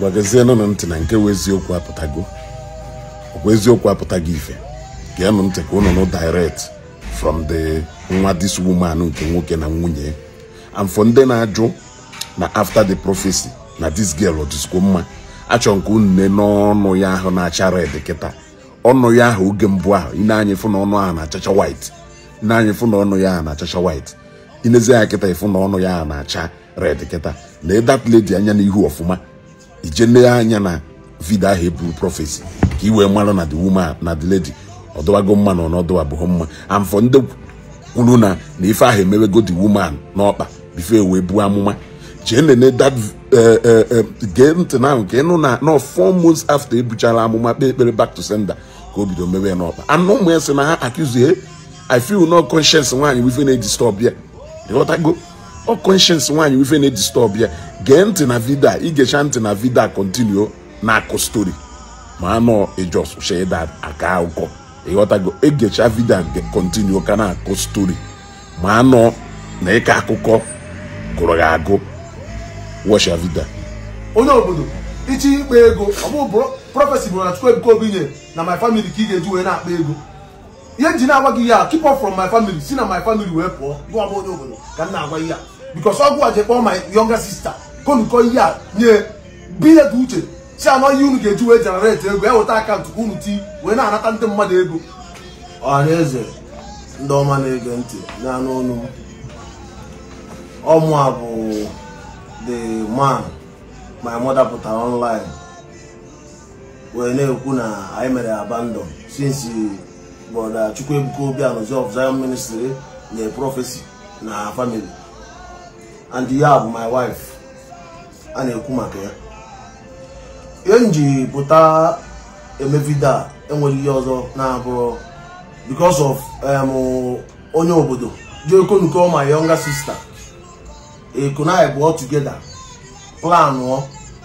ngwagezienụnụ ntị na nke wụ eziokwu apụtago ọkwa eziokwu apụtago ife geenụ ntị ka ụnụ direct from the nwa this woman nke nwoke na nwunye and for ndị na-ajụ na after the prophecy na this girl ọdịzikwo mma achọ nke unu ne n'ọnụ ya ahụ na-acha red kịta ọnụ ya ahụ oge mbụ ahụ ị na-anya ịfụ na ọnụ ahụ na-achacha white ị na-anya ịfụ na ọnụ ya ahụ na-achacha white inezi ya kịta ịfụ na ọnụ ya ahụ na-acha red kịta lee that lady anya n'ihu ọfụma ije anya na vidio ahụ eburu prọfesi ka ị wee mara na the woman na the lady ọdọwago mma na ọnọdụ abụghị mma and for ndị kwuru na na ife ahụ emewego the woman n'ọkpa bifo e wee buo amụma jee nene that eh, eh, eh, gee ntị ahụ ka ịnụ na nọ four months after ebuchara amụma kpee ekpere back to sender ka o bido mewe n'ọkpa anụ ụmụ ya sị na ha akụzie I feel no conscience nwaanyị wife na-eji stọọ ịghọtago ọ conscience nwaanyị ife na-edistọb ya gee ntị na vidio ị igecha ntị na vidio a na-akụ stori ma anọ ijọsheda aka ụkọ ịghọtago egecha vidio kontinuo ka na-akụ stori ma anọ na ịka akụkọ gụrụ gị agụ wọcha vidio onye obodo ichi ikpa ego ọbụ prọfesi bụrụ na chukwu ebuka obinye na my family ka ị ga-eji wee na-akpa ego ihe nji na-agwa gị ya keep up from my family si na my family wee pụọ gụọ bụ onye obodo ka m na-agwa ihe because ọgwụ a jekpọrọ my younger sister ka ihe a nye bilet uche si anọ ihe unu ga-eji wee jenereti ego ya akaụntụ ka unu ti wee na-anata ndị mmadụ ego ọhaneze ndị ọma na-ege ntị n'anụ ọnụ ọmụ a bụ the man my mother pụtara online wee na-ekwu na anyị mere abandon since brother Chukwuebuka Obianuzi of Zion Ministry na prophecy na family and ya bụ my wife a na-ekwu maka ya ihe m ji pụta eme a enwere ihe ọzọ na-abụ because of um, onye obodo jiokonuko my younger sister ekona bụ together planụọ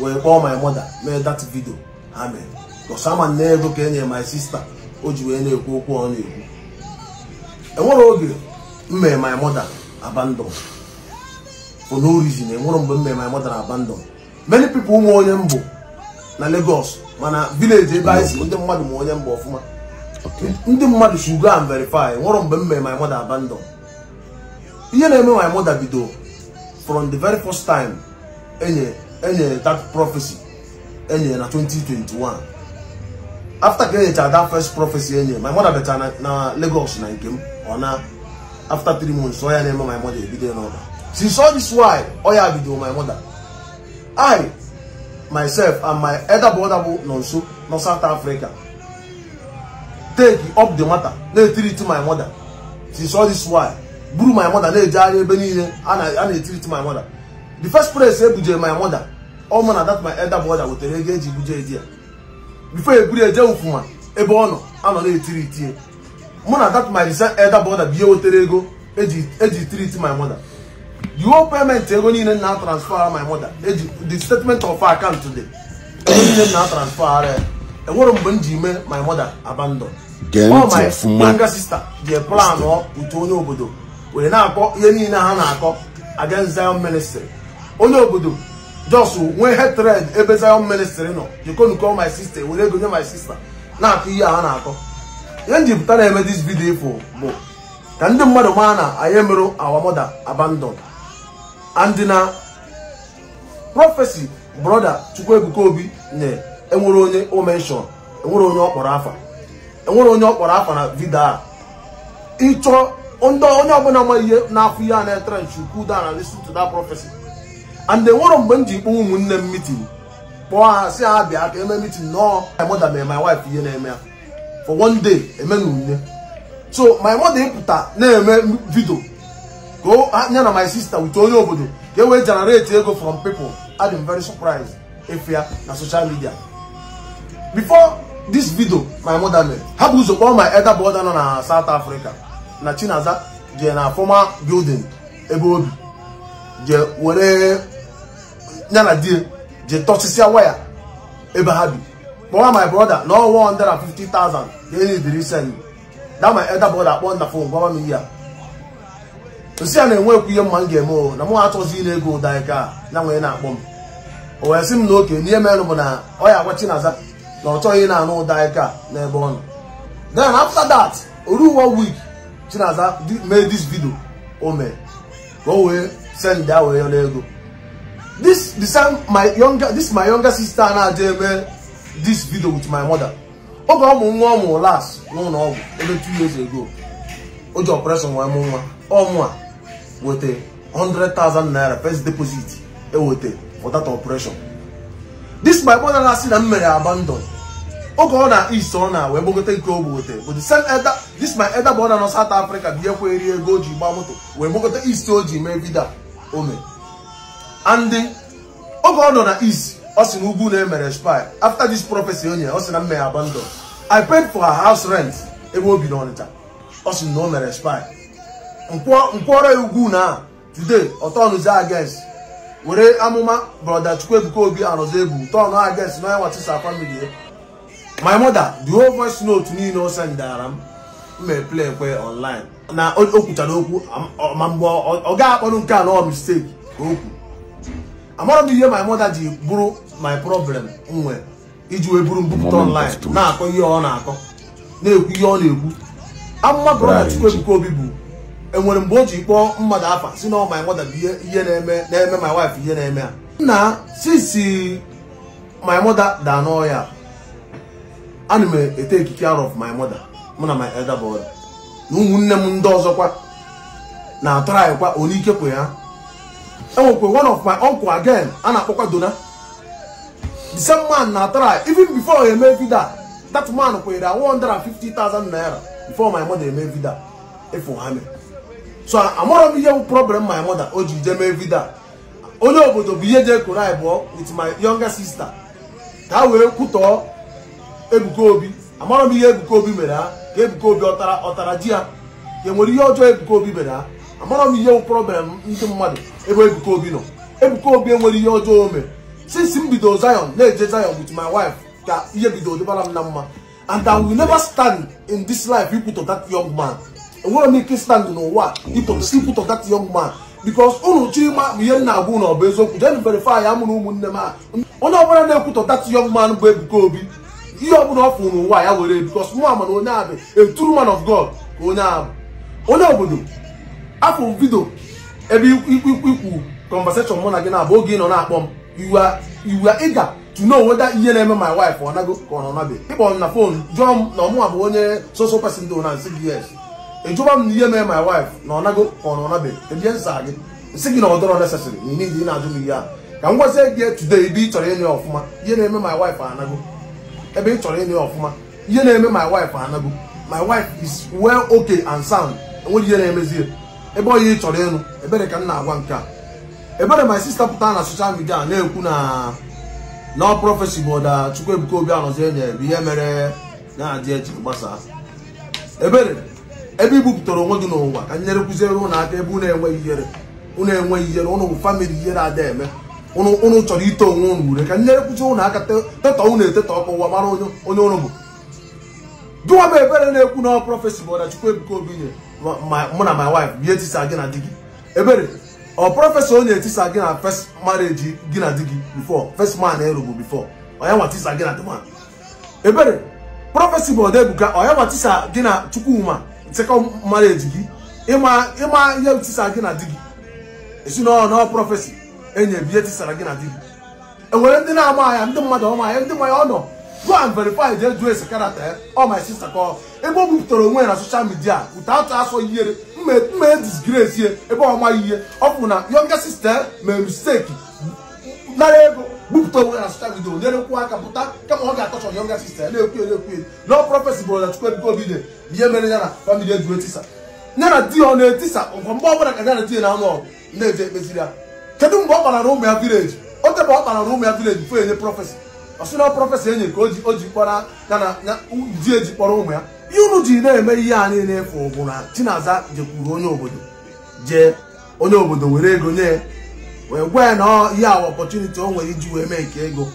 wee kpọọ my mother mee that video ha mere because n'ego ego ka e my sister o ji wee na-ekwu okwu ọ na-ekwu enwere oge m mere my mother abandon for no reason enwere eh, mgbe m mere my mother abandon many people ụmụ onye mbụ na Lagos mana village ebe anyị si ndị mmadụ ma onye mbụ ọfụma ndị mmadụ should go and verify eh, nwere mgbe m mere my mother abandon ihe na-eme my mother bido from the very first time enye enye that prophecy enye na 2021 after ka enyechara that first prophecy enye my mother beta na Lagos na nke m ọ na after three months ọ ya na-eme my mother ebido n'ụlọ she saw this why oya oh bido my mother i myself and my elder brother bụ nọ nso nọ south africa take up the matter na-etirit my mother she saw this why buru my mother na-ejegharị ebe niile a na-etirit my mother the first place ebujere my mother ọmụ oh, na that my elder brother wetara ego eji buje di ya before eburu eje ụfụma ebe ọ nọ anọ na-etiri itie mụ na that my elder brother bụ ihe wetara ego eji treat my mother you whole payment ego niile na transfer my mother eji the statement of account dị ego niile na transfer enwere e mgbe m ji mee my mother abandon ọ my younger sister ji plan utu onye obodo were na-akọ ihe niile ha na-akọ against Zion ministry onye obodo jos nwee hatred ebe Zion ministry nọ jikonuko my sister were ego nye my sister na-akọ ihe ha na-akọ ihe njipụta na-eme this video ifo bụ ka ndị mmadụ maa na anyị emerụ our mother abandon and na prọfesi brọda Chukwuebuka Obi nye enwere onye o menshọn enwere onye ọ kpọrọ afa enwere onye ọ kpọrọ afa na vidio a ịchọ ndị onye ọbụla ma ihe na-afụ ihe a na-etere nchukwu da na listen prọfesi that and enwere mgbe m ji kpọọ ụmụnne m mitin kpọọ ha si ha bịa ka eme mitin nọọ my my wife ihe na-eme ya for one day eme na unye so my mother ịpụta na-eme vidio ka nye na my sister wute onye obodo ka e generate ego from people adịm very surprised efe ya na social media before this video my mother made ha bụ ụzọ kpọọ my elder brother nọ na South Africa na Chinaza je na former building ebe obi jee were ya na je jee tọsịsịa waya ebe ha bi kpọwa my brother na ọ 150,000 ka e nyediri send that my elder brother kpọọ na phone gwa m ihe a osi a na-enwekwu ihe mma m ga-eme o na m atụzi na ego ụda ika ya nwee na-akpọ m o wee sị m na oke n'ihe merụ bụ na ọ ya agwa Chinaza na ọ chọghị na-anụ ụda ika n'ebe ọ nọ then after that oru one week Chinaza mee dis vidio o mee ka o wee send ya wee yọrọ ego this the same my younger this my younger sister na-adị eme this video with my mother oge ọmụ nwa ọmụ las n'ụlọ ọgwụ ebe two years ago o ji operation wee mụ nwa ọmụ a hundred thousand naira first deposit eweta for that operation this my brother na-asị na m mere abandon oge ọ na east ọ na wee gbagote nke ogbe wete but the same elder this my elder brother nọ South Africa bi ekwe eri ego o ji gba moto wee gbagote east o ji mee vida ome and oge ọ nọ na east ọ sị na ugwu e na-emere spy after this prophecy nye ọ sị na m mere abandon I paid for her house rent ebe o bi n'Ọnịcha ọ sị na o mere spy nkwụọrọ ugwu na today ọtọnụzi ages were amụma brọda Chukwuebuka Obi arụzi egwu tọnụ ages na onye nwatisa family my mother the whole voice note niile o sendara m mee play kwe online na o kwuchara okwu ma mgbe ọ ga akpọrụ nke a nọ mistake ka o kwu amara m ihe my mother ji bụrụ my problem nwe iji wee bụrụ mbupụta online na-akọ ihe ọ na-akọ na-ekwu ihe ọ na-ekwu amụma brọda Chukwuebuka Obi bụ enwere mgbe o ji kpọọ mmadụ afa si na ọ my mother bụ ihe na-eme na-eme my wife ihe na-eme a nna sisi my mother daa n'ọhịa ana m ete ekike out of my mother mụ na my elder brother na ụmụnne m ndị ọzọkwa na-atụrụ kwa onye ike ya enwekwe one of my uncle again a na-akpọkwa dona the same man na-atụrụ even before eme vida that man kwenyere 150,000 naira before my mother eme vida efu ha mere so amarọ m ihe bụ problem my mother o ji jee mee vidio onye obodo bụ ihe jee koro abụọ with my younger sister ka wee kwutọọ Ebuka Obi amarọ m ihe Ebuka Obi mere ha ka Ebuka Obi ọtara ọtara ji ya ka enwere ihe ọjọọ Ebuka Obi mere ha amarọ m ihe bụ problem ndị mmadụ ebe Ebuka Obi nọ Ebuka Obi enwere ihe ọjọọ o since m bido Zion na-eje Zion with my wife ka ihe bido dịbara m na mma and I will never stand in this life ikwutọ that young man enwere onye ike n'ụwa ịpụta si put that young man because unu chima bụ ihe na-agwụ na ọ bụ eziokwu jee verify ya mụrụ ụmụnne m a onye ọbụla na-ekwutọ that young man bụ Ebuka Obi ihe ọbụla ọ fụrụ n'ụwa ya were because nwa mana onye a bụ a true man of God ka onye a onye obodo afọ vidio ebe ikwu conversation mụ na gị na-abụ oge ị nọ na-akpọ m iwe ịga to know whether ihe na-eme my wife ọ nago ka ọ nọ nabe ịkpọ m na fon jụọ m na ọmụnwa bụ onye soso person dị na ịjụba m na ihe mee my wife na nago ka ọ nọnabe ebie nsa gị e si gị na ọ dọrọ nesesịrị na ị na-ajụ m ihe a ka m gwazie gị today ebe ị chọrọ ịnụ ya ọfụma ihe na-eme my wife anago ebe ị chọrọ ịnụ ya ọfụma ihe na-eme my wife anago my wife is well okay and sound enwere ihe na-emezi ebe ọ ya ị chọrọ ịnụ ebere ka m na-agwa nke a ebere my sister pụta na social midia na-ekwu na nọ prọfesi bụ ọda Chukwuebuka Obi anọzie nye bụ ihe mere na-adị eji gbasaa. ebere ebe i ibupụtara onwe gị n'ụwa ka nyere kụziere ụnụ aka ebe ụnụ enweghị ihere ụnụ enweghị ihere ụnụ bụ famịlị ihere ada eme ụnụ chọrọ ito onwe ụnụ ure ka nyere kụziere ụnụ aka tetọ ụnụ etetọ ọkụ ụwa mara onye ụnụ bụ gịnwa bụ ebere na-ekwu na prọfesi bụ Ọrachukwu Ebuka Obi nye mụ na my wife bie tisa gị na di gị ebere ọ prọfesọ onye etisa gị na first marriage gị na di gị before first man erugbu before onye nwa tisa gị na di ebere prọfesi bụ ebuka onye nwa tisa gị na Chukwuma sekọnd marriage gị ịma ihe tisara gị na di gị ezinụlọ nọ prọfesi enye bihe tisara gị na di gị enwere ndị na-ama ahịa ndị mmadụ ọma ahịa ndị mmanya ọ nọ go and verify the jụọ ese karata ya ọ my sister kọ ebe o bupụtara onwe na soshal midia ụta atụ asọ ihere mma disgrace ya eh? ebe ọma ihe ọ bụ na yonga sister mere misteki nara ego bupụta onwe na social media nyere nkwụ aka pụta kama ọ ga-atọchọ yonga sista na-ekwu na-ekwu na prọfesi bụrụ na chukwu ebuka obi dị ihe mere ya na famili ejiwe tisa ya na di ọ na-etisa ọkwa mgbe ọbụla ka ya na di na anụ ọgụ na-eje ekpeziri ya kedu mgbe ọ kpara na ụmụ ya vileji o tebe ọ kpara na ụmụ ya vileji fụ enye prọfesi ọsụna prọfesi enye ka o ji na di eji kpọrọ ụmụ ya ihe unu ji na-eme ihe a niile efu bụ na chinaza jekwuru onye obodo jee onye obodo were ego nye ya wee gwee na ihe awa ọpọchuniti o nwere iji wee mee nke ego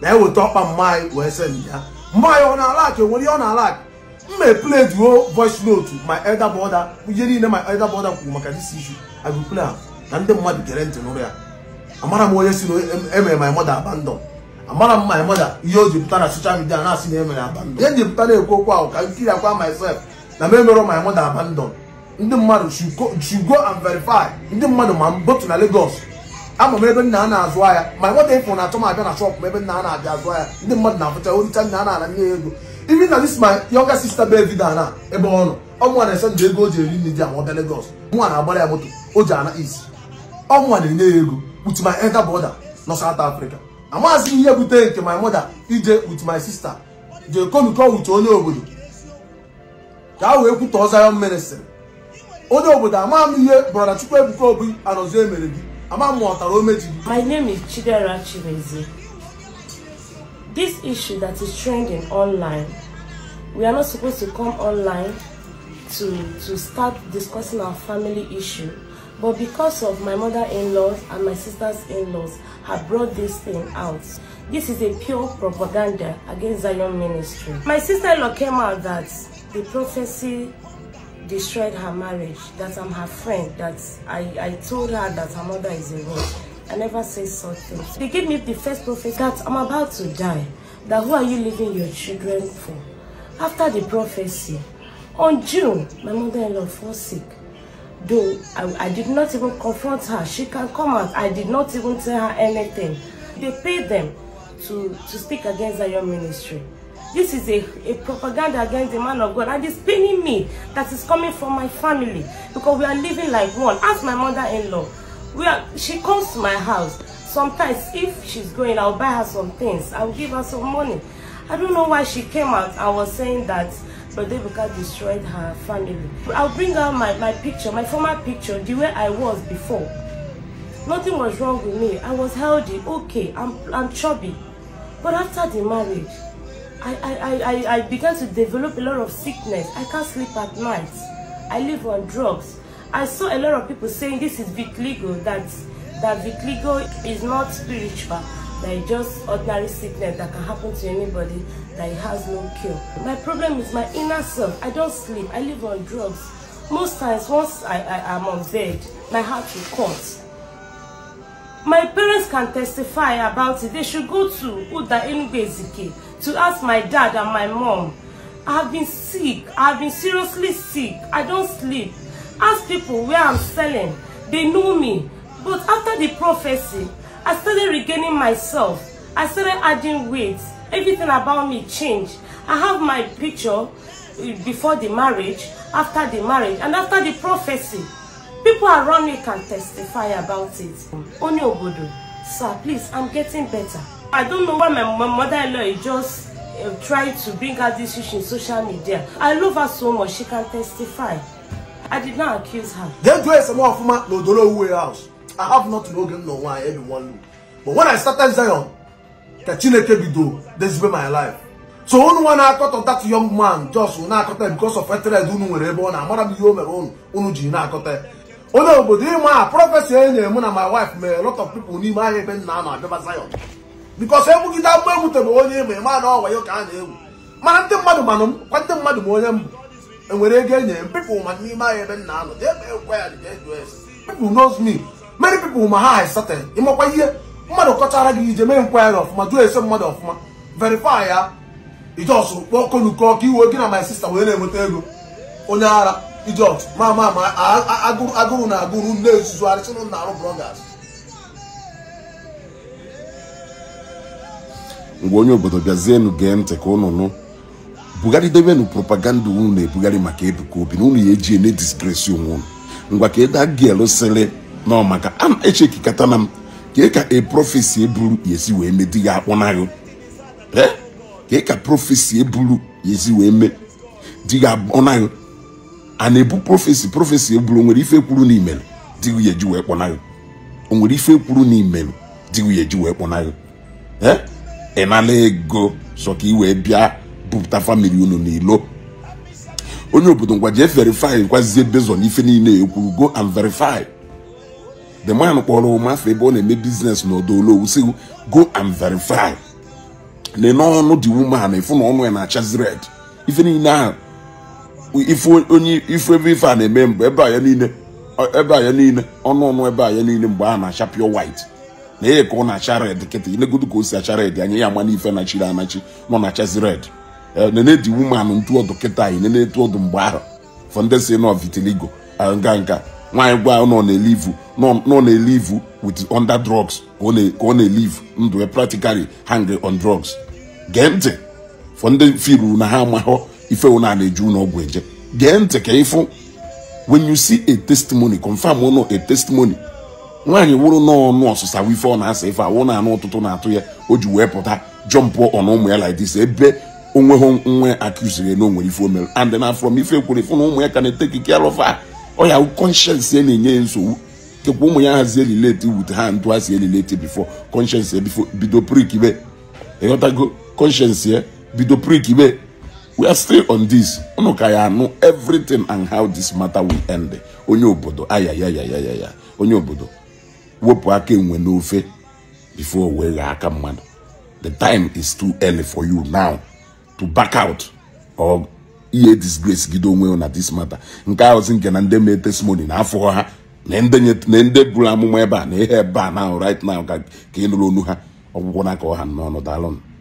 na-eweta ọkpa mma wee se ya mgbe anyị ọ na-ala nwere ihe ọ na-ala akụ m mee play duo voice note my elder brother ihe niile my elder brother kwuru maka this isu I will play na ndị mmadụ gere ntị n'ụrụ ya amara m onye si na emere my mother abandon amara m my mother ihe o ji pụta na social midia na-asị na emere abandon ihe ji pụta na-ekwu okwu ahụ ka m kiri akwa myself na m emere my mother abandon ndị mmadụ should go and verify ndị mmadụ ma botu na Lagos ama m ebe nna a na-azụ ahịa ma nwata ịfụ na achọ m abịa na shọpụ m ebe nna a na-abịa azụ ahịa ndị mmadụ na-afụcha oricha nna a na-ana nye ya ego even na dis my younger sister baby vida na ebe ọ nọ ọmụnwa na-ese ndụ ego o ji eri nri di ama ọbịa Lagos mụnwa na-agbara ya moto o ji ana is ọmụnwa na-enye ya ego with my elder brother nọ South Africa amaghịzi ihe bute nke my mother ije with my sister jee konukọ with onye obodo ka a wee kwutọ Zion ministry onye obodo amam ihe brọda chukwuebuka obi anọzi emere gị ama m ọtara o mejiri my name is chidera chimezie this issue that is trending online we are not supposed to come online to to start discussing our family issue but because of my mother-in-laws and my sisters-in-laws have brought this thing out this is a pure propaganda against zion ministry my sister-in-law came out that the prophecy destroyed her marriage, that I'm her friend, that I, I told her that her mother is a witch. I never say such things. They gave me the first prophet that I'm about to die, that who are you leaving your children for? After the prophecy, on June, my mother-in-law fell sick. Though I, I did not even confront her, she can come out. I did not even tell her anything. They paid them to, to speak against Zion ministry. This is a, a propaganda against the man of God and it's paining me that is coming from my family because we are living like one. Ask my mother-in-law. We are, she comes to my house. Sometimes if she's going, I'll buy her some things. I'll give her some money. I don't know why she came out. I was saying that Brother Rebecca destroyed her family. I'll bring out my, my picture, my former picture, the way I was before. Nothing was wrong with me. I was healthy, okay, I'm, I'm chubby. But after the marriage, I, I, I, I began to develop a lot of sickness. I can't sleep at night. I live on drugs. I saw a lot of people saying this is vitiligo, that, that vitiligo is not spiritual, that it's just ordinary sickness that can happen to anybody, that it has no cure. My problem is my inner self. I don't sleep. I live on drugs. Most times, once I, I am on bed, my heart will cut. My parents can testify about it. They should go to Uda Enugbe to ask my dad and my mom. I've been sick. I've been seriously sick. I don't sleep. Ask people where I'm selling. They know me. But after the prophecy, I started regaining myself. I started adding weight. Everything about me changed. I have my picture eh, before the marriage, after the marriage, and after the prophecy. People around me can testify about it. Oni Obodo, sir, please, I'm getting better. I don't know why my, my mother-in-law is just uh, trying to bring out this issue in social media. I love her so much, she can testify. I did not accuse her. They do some of my Lodolo house. I have not known no one, everyone. But when I started Zion, Kachineke Bido, this my life. So only one I thought of that young man just when I because of Ethered Unu were born, and Madame Yomer own Unujina Kote. Only obodo a na eh, my wife mere a lot of people n'ime ahịa ebe nna a na Zion Because bikọs egbugide agba egwu tebụ onye ma ịma na ọwayo ka a na-egwu mana ndị mmadụ manụ m kwa ndị mmadụ ma onye m enwere ego enyere m pipụl ma n'ime ahịa ebe nna anọ jee mee ekwe ya jee jụọ pipụl knows me mary pipụl ma ha haisata ịmakwa ihe mmadụ kọchara gị ije mee nkwari ọfụma jụọ ese mmadụ ọfụma verify ya ijeọsụ kpọọ konuko ka iwe gị na my sister wee na-enweta ego onye ara ijeọsụ ma ma ma agụrụ na agụrụ nne nzuzu arịsịnụ na arụ brọgas mgbe onye obodo bịazienụ gee ntị ka unu nụ bugharịdobenụ propaganda unu na-ebugharị maka Ebuka Obi na unu ya eji ene disgresi onwe unu ngwa ka eda gil sịrị nọ maka na echekikata na m ka e eburu wee mee ka profesi eburu ya esi wee mee di ya a ebu eburu e onwere ife kwuru wee ịnala ego sọ ka ị wee bịa bupụta famili unu n'ilo onye obodo ngwa jee verify kwazie bezo n'ife niile ekwuru go and verify the man kpọrọ ụmafọ ebe ọ na-eme biznes n'ọdụ olowu si go and verify na n'ọnụ dị woman efu na ọnụ ya na-achazi red ife niile ahụ ife onye ife ebe ife a na-eme mgbe ebe a ya niile ebe a ya niile ọnụ ọnụ ebe a ya niile mgbe a na-acha pure white na ya ka ọ na-acha red kịta inegodu ka o si acha red anya ya ama n'ife nachiri anachi nọ na chazi red eh, Nene di wumanụ ntu ọdụ kịta anyị nene etu ọdụ mgbe ahụ fọndesi nọ vitiligo nga nka nwaanyị gwa nọ na-elivu nọ na-elivu with under drugs ka ọ na-elivu ndụ e practically hang on drugs gee ntị fọndị firu na ha amahụ ife ụna na-eju ụlọ ọgwụ eje gee ntị ka ịfụ when you see a testimony confirm ụnọ a testimony nwaanyị wụrụ n'ọnụ ọsụsa ife ọ na-asa ife awụ na-anụ ụtụtụ na-atụ ya o ji wee pụta jọmpụ ọnụ ụmụ ya lidis ebe onwe nwa nwe akụziri na o nwere ife o mere and na from ife kwere ife na ụmụ ya ka na ete ke alụfa ọ ya ya na-enye ya nsogbu kekwa ụmụ ya hazie elileti wute ha ntụ ha si elileti bifo kọnshensi ya bido prikibe ịghọtago kọnshensi ya bido prikibe we are still on this ụnụ ka ya anụ everything and how this matter will end onye obodo ayayayayaya onye obodo wepụ aka enwe n'ofe bifo wee aka mmadụ the time is too early for you now to back out or ihe disgrace gido onwe na this matter nke ahụzi nke na nde mee testimony na afọ ha na nde buru amụma ebe a na ihe ebe a na right now ka ị nụrụ onu ha ọgwụgwọ n'aka ọha n'ọnụ daalụnụ